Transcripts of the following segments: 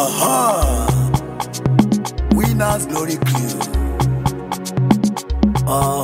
Aha! Winners glory clue. Uh, ah.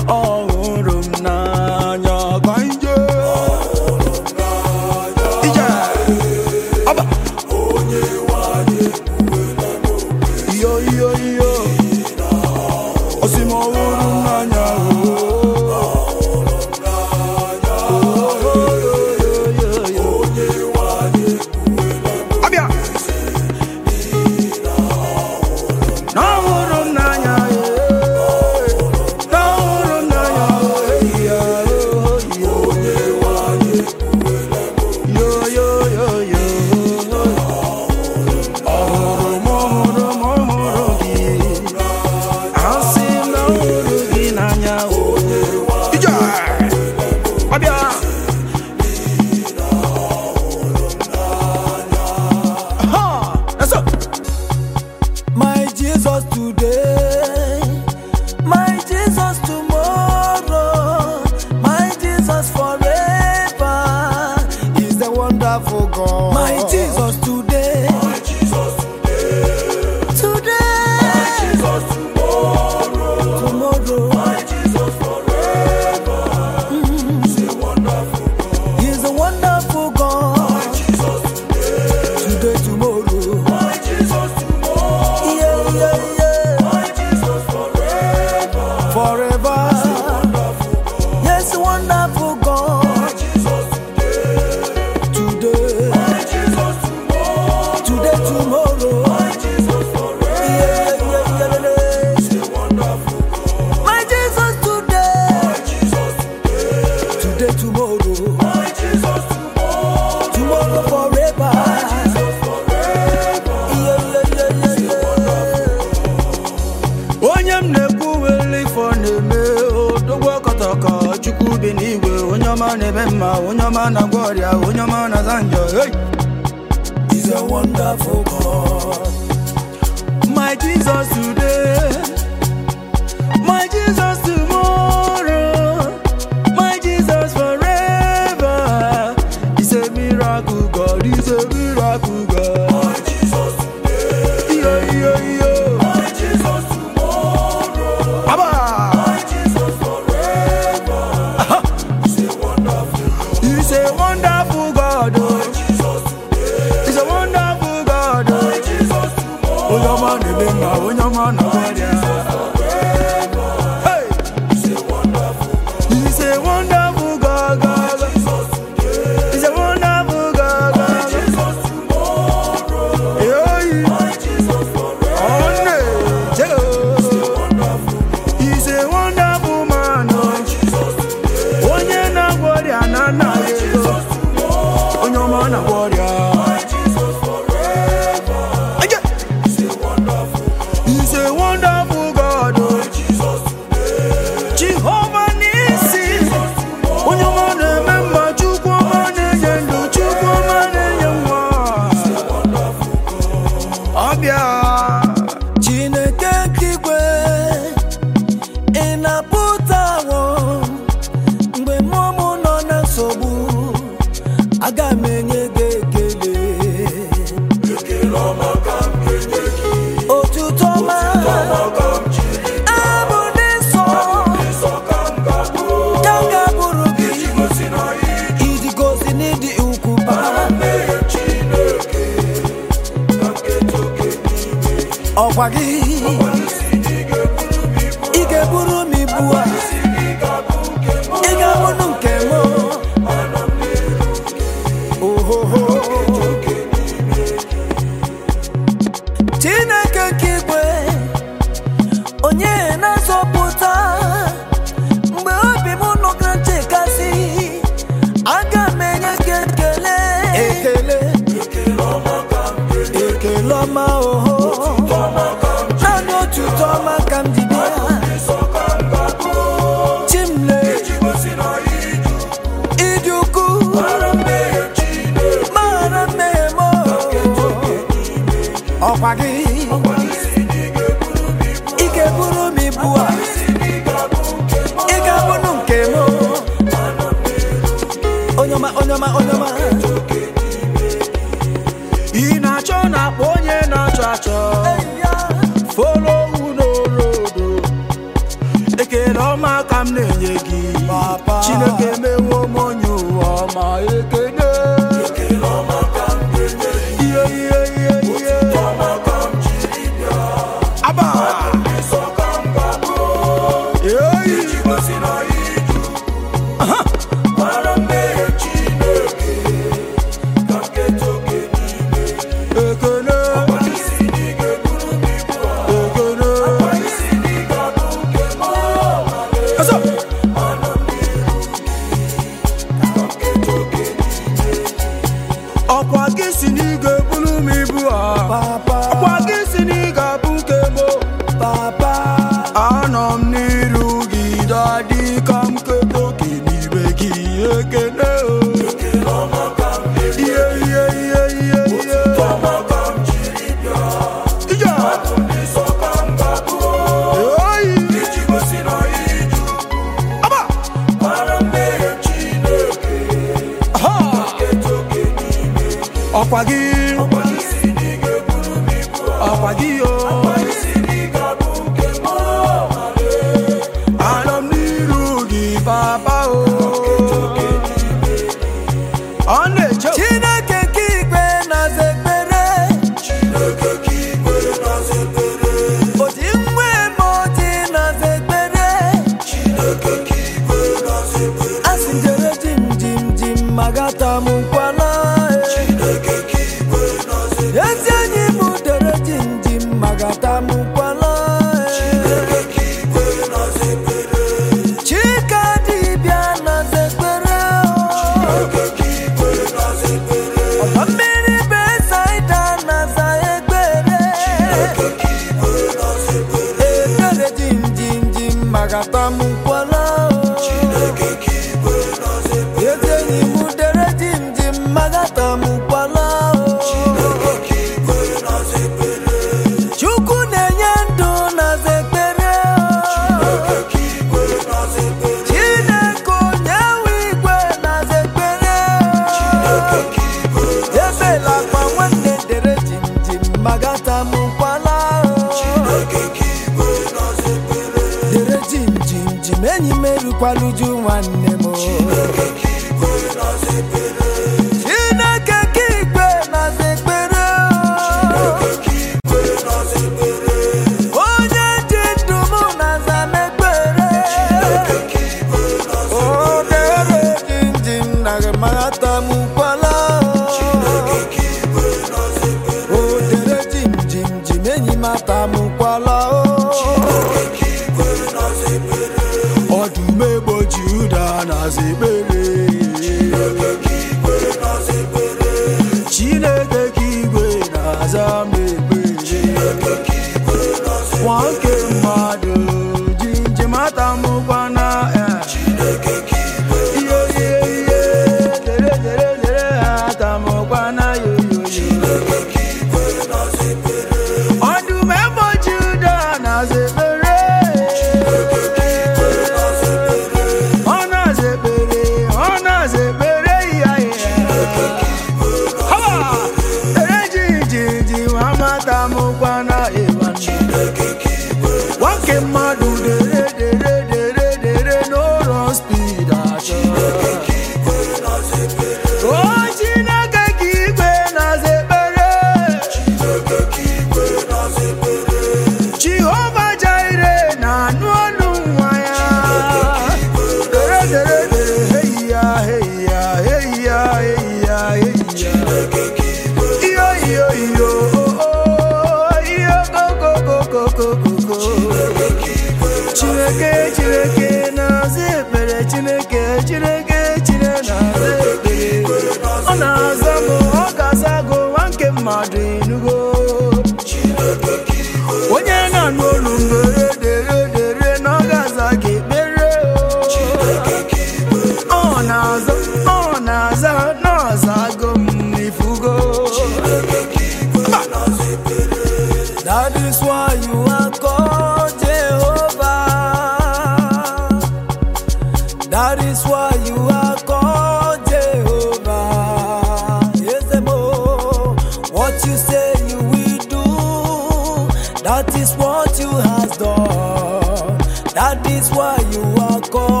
That is what you has done. That is why you are called.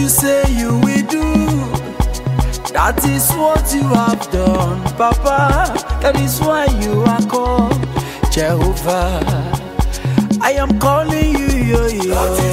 you say you will do. That is what you have done, Papa. That is why you are called Jehovah. I am calling you, yo,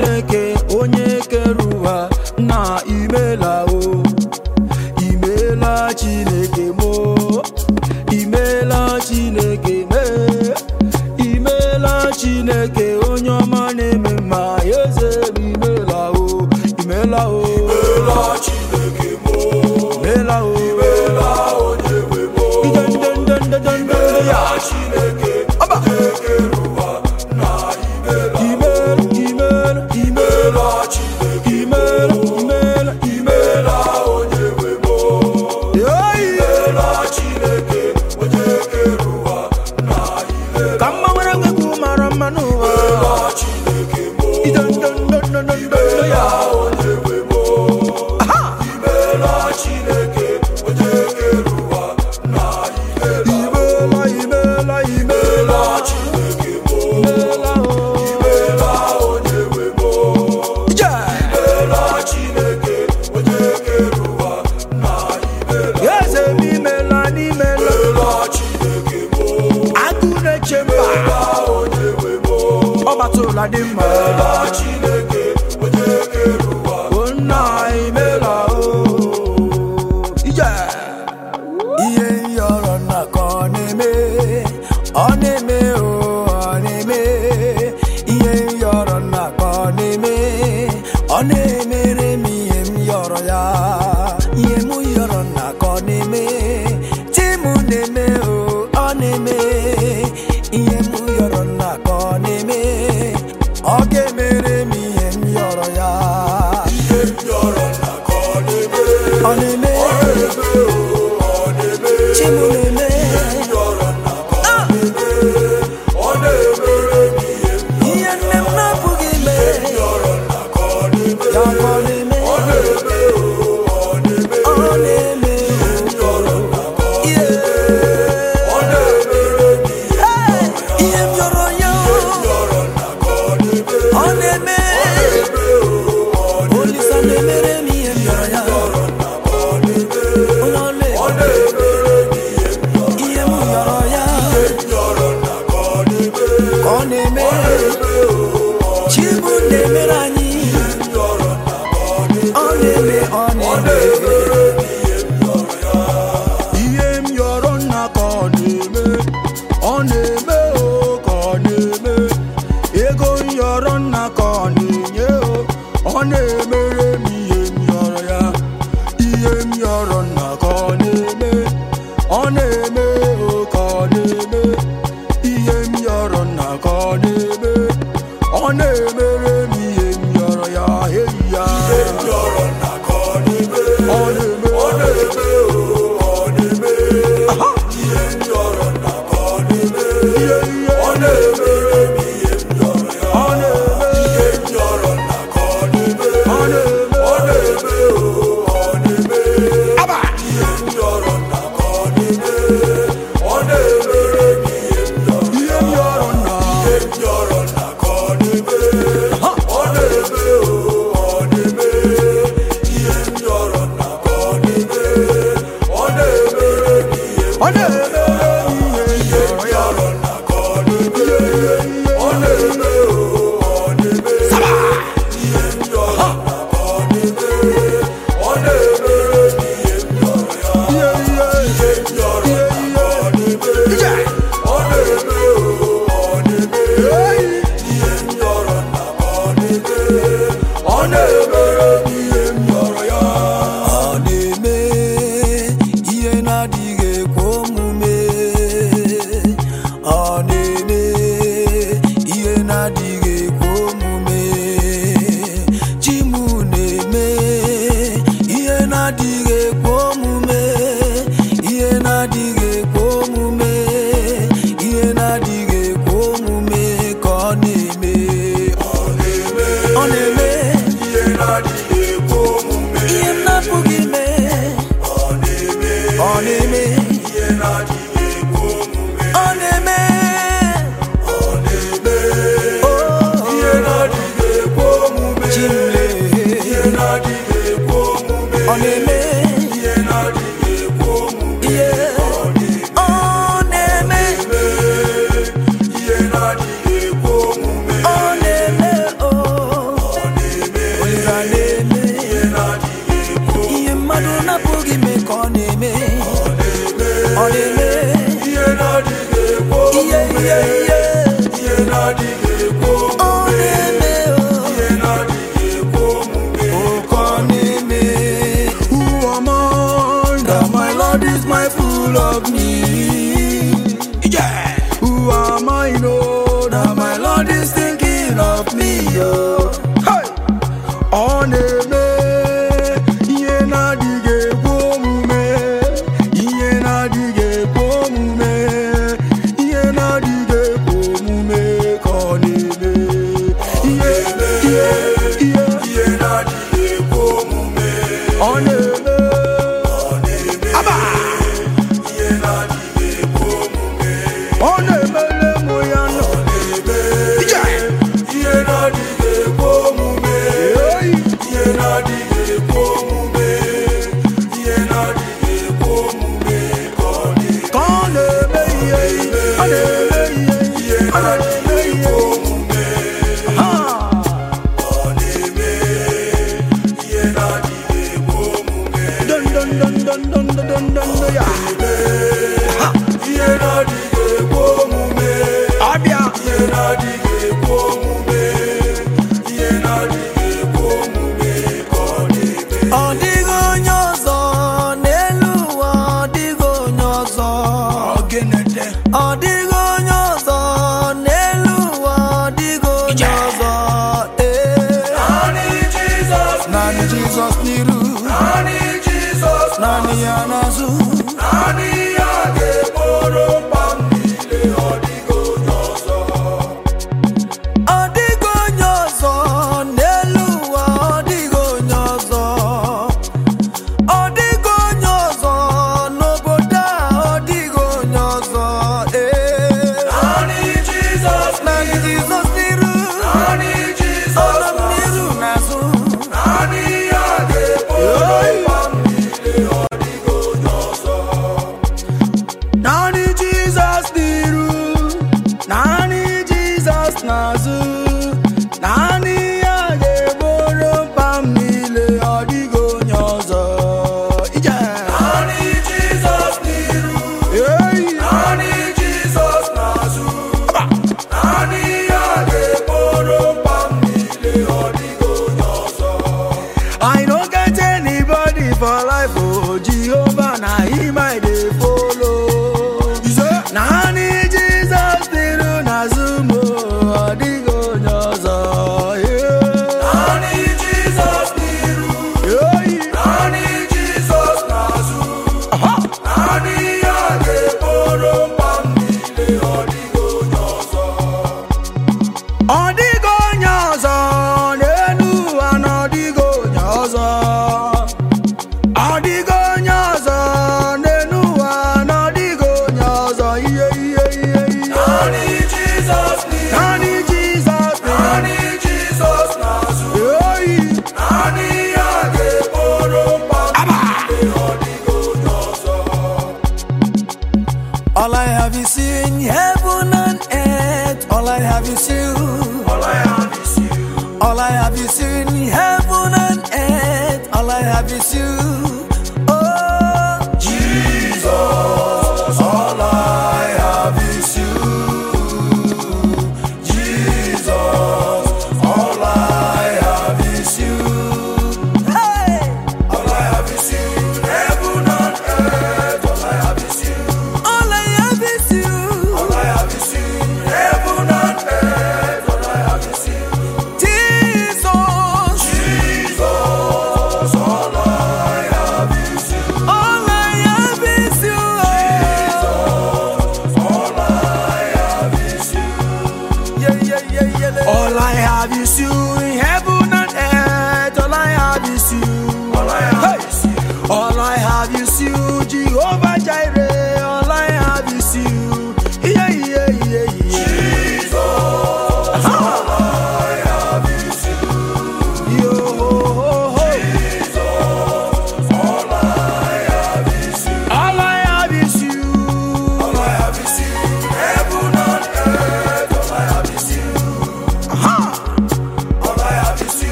chineke onye kere ụwa na imela o imela chineke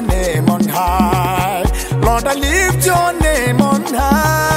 your name on high. Lord, I lift your name on high.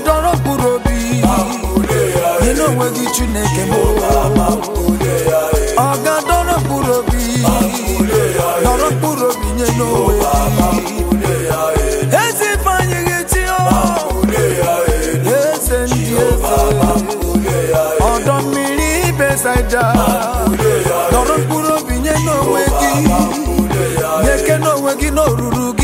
adọrọ mkpụrụ obi ịnụ onwe gị chineke m ọ ga obi dọrọ mkpụrụ obi nye n'onwe ezi eze ndị ọdọ mmiri besaida dọrọ mkpụrụ obi nye n'onwe gị nye ke n'onwe gị n'oruru gị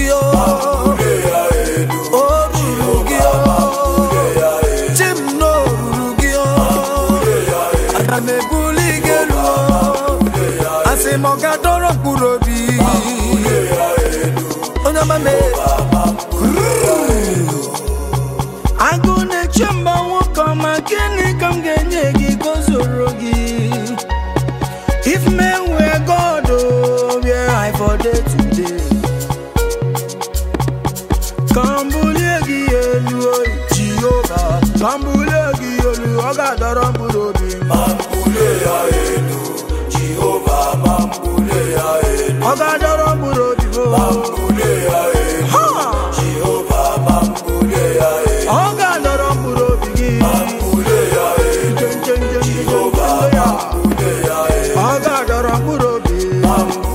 love.